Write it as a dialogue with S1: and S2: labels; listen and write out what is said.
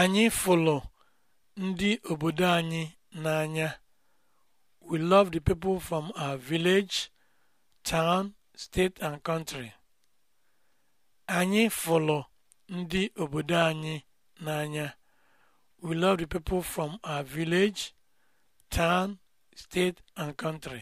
S1: Anyị fụlụ ndị obodo anyị n'anya. We love the people from our village, town, state and country. Anyị fụlụ ndị obodo anyị n'anya. We love the people from our village, town,
S2: state and country.